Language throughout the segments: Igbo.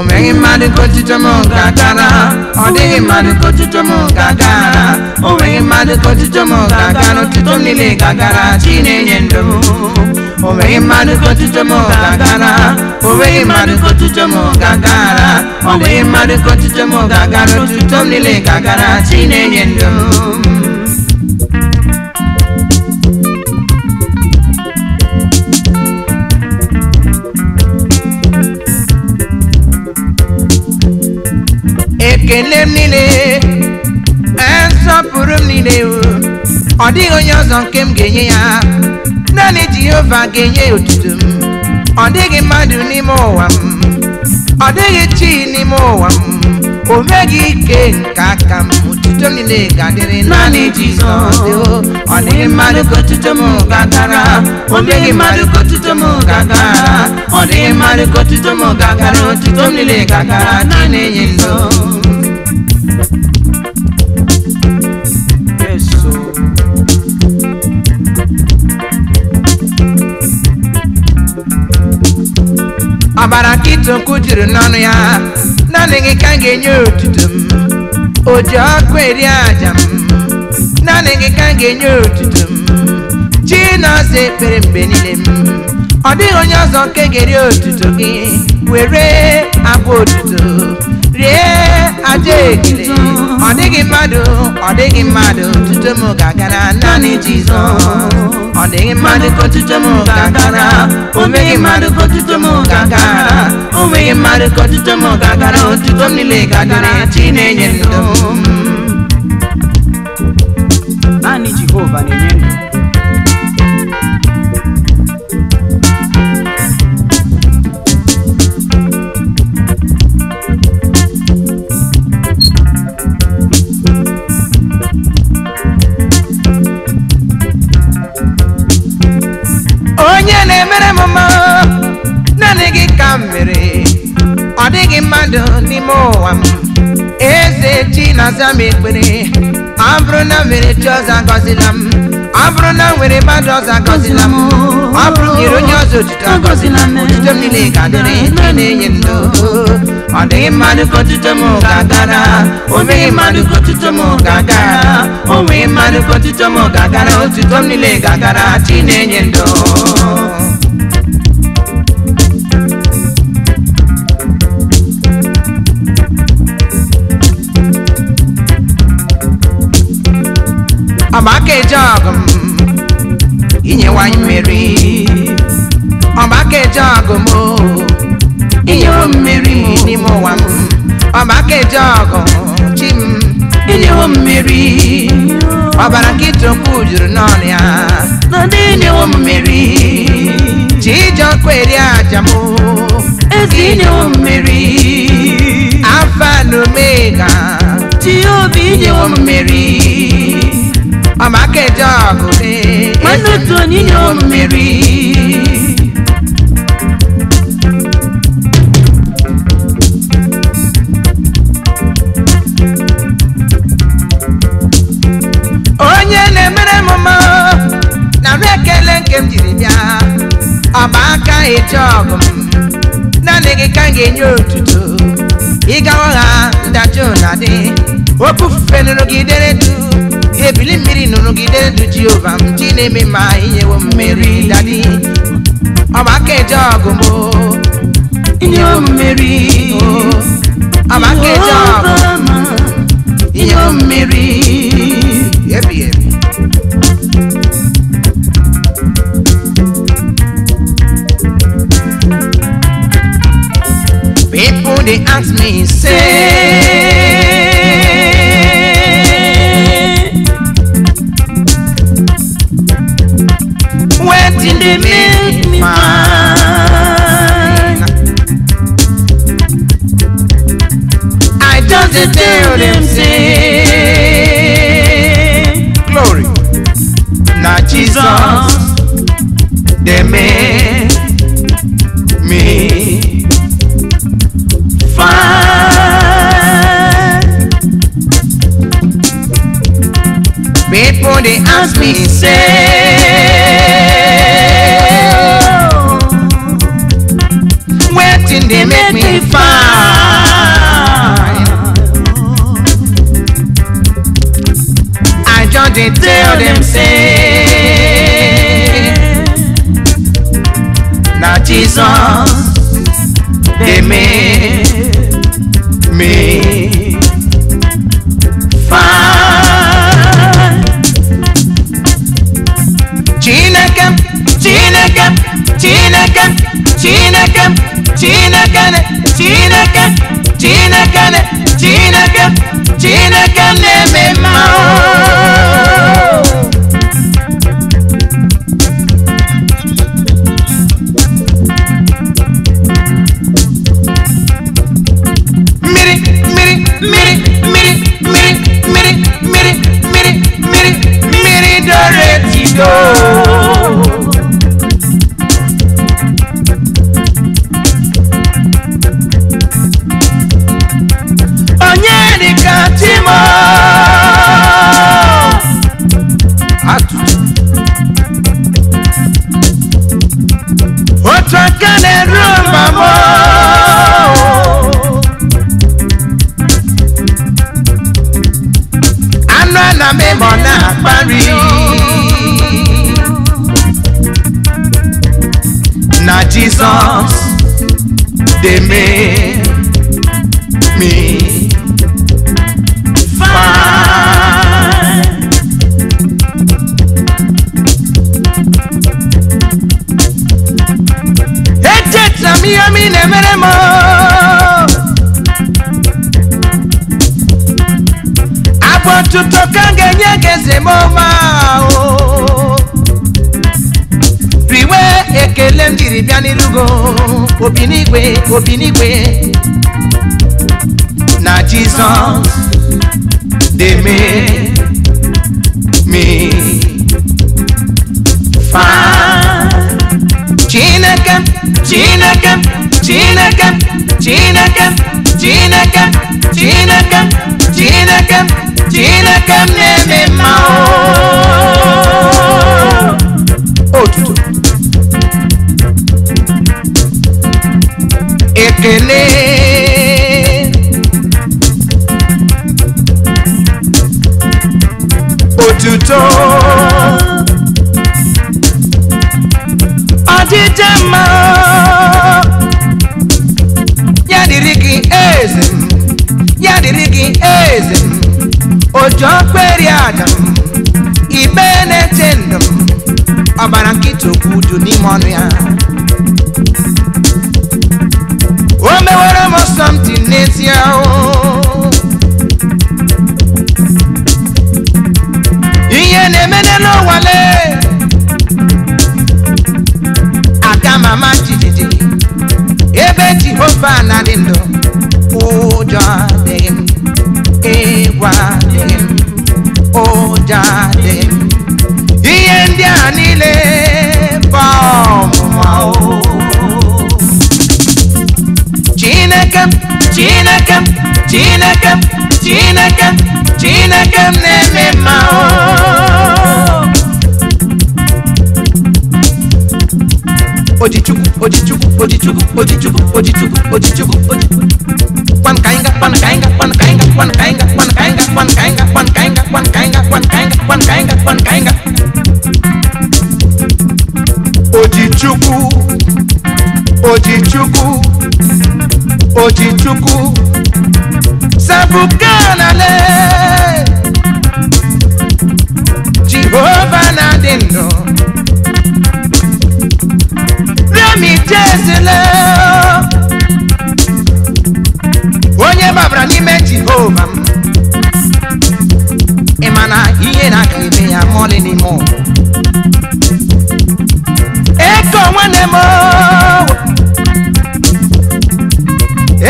o meghị mmadụ kotuto m gagara ọ dịghị mmadụ kotuto m gagara o nweghị mmadụ kotuto m gagara otuto m niile gagara chi na-enye ndụ o nweghị mmadụ kotuto m gagara o nweghị mmadụ kotuto m gagara ọ dịghị mmadụ kotuto m gagara otuto m niile gagara chi na-enye ndụ ekele m niile nsọpụrụ m niile ọ dịghị onye ọzọ nke m ga-enye ya naanị Jehova ga-enye otuto m ọ dịghị mmadụ n'ime ụwa m ọ dịghị chi n'ime ụwa m o meghị ike nke aka m otuto m niile ga-adịrị naanị Jizọs ọ dịghị mmadụ ka otuto m gagara o meghị mmadụ ka otuto ọ dịghị mmadụ ka otuto m gagara otuto m niile gagara ka ịtụ nkụ jiri n'ọnụ ya naanị gị ka m ga-enye otuto m o ji ọkụ eri aja m naanị gị ka m ga-enye otuto m chinọzọ ekpere mgbe niile m ọ dịghị onye ọzọ nke ga-eri otuto gị were abụ otuto rie aja ekele ọ dịghị mmadụ ọ dịghị mmadụ tutu m ga naanị Jizọs ọ dịghị mmadụ ka otuto m ga o meghị mmadụ ka otuto m ga o meghị mmadụ ka otuto m ga-agara otuto m niile ga chi na-enye ndụ naanị Jehova na-enye ndụ nne m naanị gị ka m mere ọ dịghị mmadụ n'ime ụwa m eze chi na-aza ekpere ọ bụrụ na nwere chi ọzọ agọzila m ọ bụrụ na nwere mmadụ ọzọ agọzila m ọ bụrụ nyere onye ọzọ otuto agọzila m otuto m niile ga-adịrị nke na-enye ndụ ọ dịghị mmadụ ka otuto m ga-agara o meghị mmadụ ka otuto m ga-agara o nweghị mmadụ ka otuto m ga-agara otuto m niile ga-agara chi na-enye ndụ ọgbaka ọgụ m inyewanye mmeri ọgbaka ọgụ m inyewo mmeri n'ime ụwa m ọgbaka ọgụ chi m inyewo mmeri ọbara nkịtụkwu juru n'ọnụ ya nọdụ inyewo mmeri ji ije ọkụ eri aja m ezi inyewo mmeri afa na omega ji obi inyewo mmeri ọmọkejì ọgùnlé mọnùtù nínú mmiri. onye na-emere m na m ekele nke m jiri bịa ọmụaka eji ọgụ m naanị gị ka m ga-enye otuto ịgawa ha ndachi ụna dị okwu nụrụ gị dere duu ebili mmiri nụrụgide ndụ jehova m chi na-eme ma wo mmeri dadi ọmaka eje ọgụ m inyewo mmeri ọmaka eje ọgụ inyewo mmeri ebi ebi People they ask me, say still them same. Glory. Now Jesus, they made me fine. People they ask me say, oh, where did they make me fine? tell them say na jesus dey make me fine. chineke chineke chineke chineke chineke. amor. miami nemere mo abọ tuntun kan genye gese mo ma o riwe ekele m jiri bịa n'irugo Obinigwe, n'igwe obi n'igwe na jizọs dey mee me fine. Chinaka, Chinaka, Chinaka, Chinaka, Chinaka, Chinaka, Chinaka, Chinaka, Chinaka, Chinaka, mma ya dịrị gị eze ya dịrị gị eze m ojuọkperi ada m ibe na-eche ndụ m ọbara nkịta okwu n'ime ọnụ ya o mewere m something n'ezie ama jijiji ebe jehova na dị ndụ ụjọ adịghị m egwu adịghị m ụjọ adịghị m ihe ndị a niile bụ ọmụma chineke m chineke m chineke m chineke m chineke m na-eme mma ojichukwu ojichukwu ojichukwu ojichukwu ojichukwu ojichukwu kwan ka kwan ga kwan ka kwan ga kwan ka kwan ga kwan ka anyị ga-akpan ka anyị n'ime oh. onye babara n'ime jehova m ị ma na ihe na-aka eme ya mọlị n'ime ụwa eko nwanne m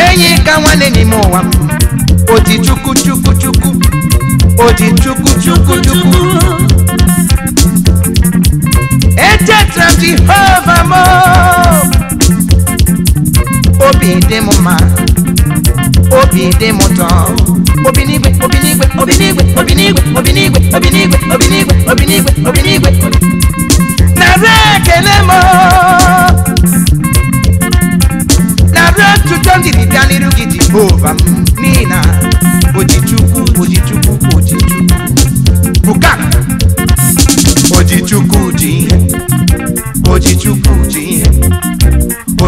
enyi ka nwanne n'ime ụwa m oti chukwu chukwu chukwu Oji chukwu chukwu chukwu etetra m jehova m obi dị m mma obi dị m ụtọ obi n'igwe obi n'igwe obi n'igwe obi n'igwe obi n'igwe obi n'igwe obi n'igwe obi n'igwe obi n'igwe nara ekele m nara otuto ndị dịbịa n'iru gị jehova m n'ihi na ojichukwu ojichukwu ojichukwu buka ojichukwu ji ihe ojichukwu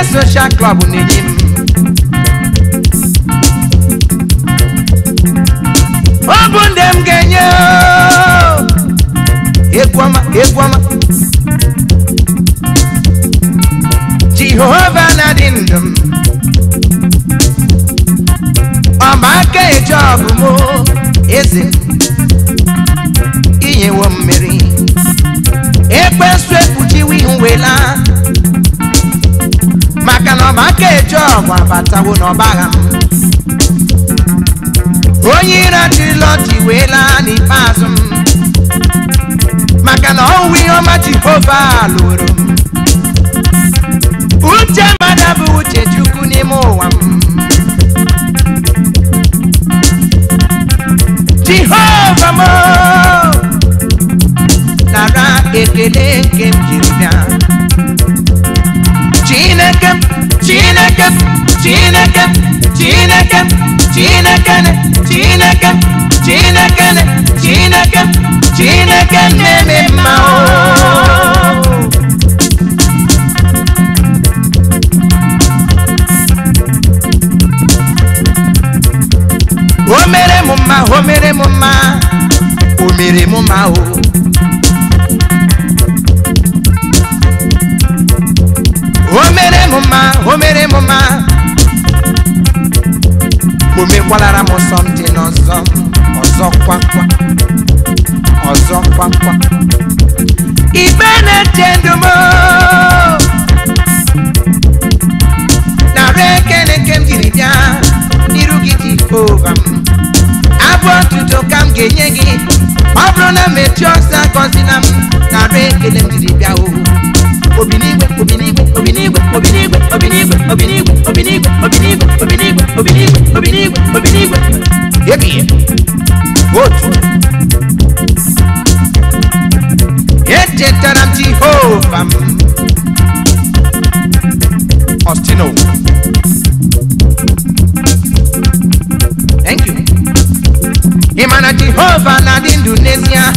Eye social club n'enyim. Obu ndị m ga-enye egwu ọma egwu ọma. Jehova na-adị ndụ m. Ọba aka eje ọbụ m eze inyewo mmiri. wela. ka eji ọgwa batawo n'ọbagha m onye ire jilọji wee laa n'ikpeazụ m maka na ọwụwa ihe ọma jehova lụrụ m uche mmadụ bụ uche chukwu n'ime ụwa m jehova m nara ekele nke m Chineke Chineke Chineke Chineke Chineke Chineke Chineke Chineke na-eme mma o mere m mma o mere m mma mere m mma oh. akwalara m somtin ọzọ ọzọ kwa ọzọ ibe na-eche ndụ m nara ekele nke m jiri bịa n'iru gị jehova m abụọ ntutu ka m ga-enye gị ọ bụrụ na mechie ọsọ na m nara ekele m jiri bịa ohu Baby. Good. Yet ho Jehovah. Ostino. Thank you. Imana Jehovah na Indonesia.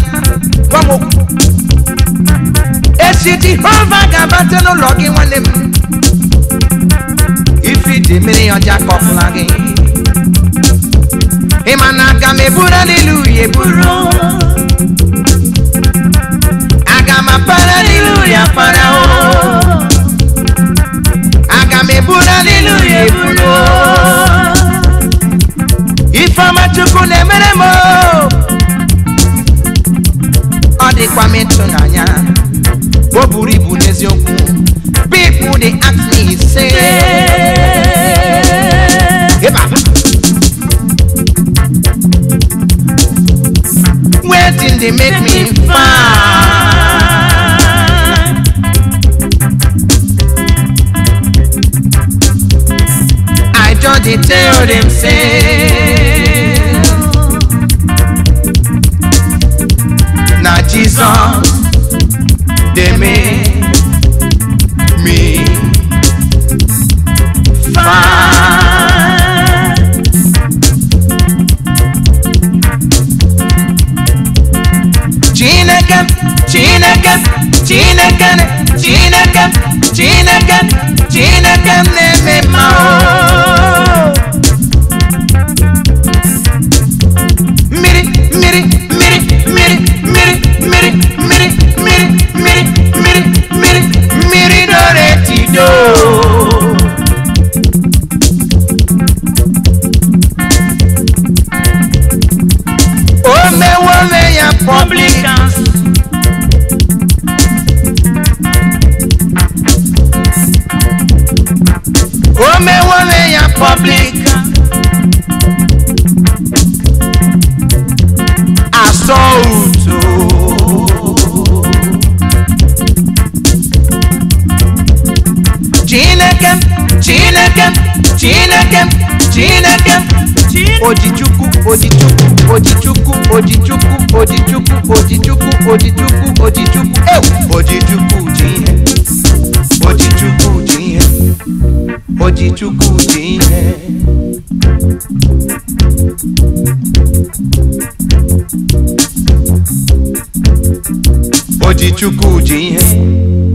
Wamo. Esi Jehovah gabate no logi nwanne m. Ifi dị mmiri ọja lagi aga m eburu n'ilu ya eburu aga m apara n'ilu ya para o aga m eburu n'ilu ya eburu ifeọma chukwu na-emere m ọ dịkwa m ịtụnanya o buru ibu n'eziokwu dey make me fine. I just dey tell dem say na Jesus they make. chineke m chineke m chineke m chineke m ojichukwu ojichukwu ojichukwu ojichukwu ojichukwu ojichukwu ojichukwu ojichukwu ewu ojichukwu ji ihe ojichukwu ji ihe ojichukwu ji ihe ojichukwu ji ihe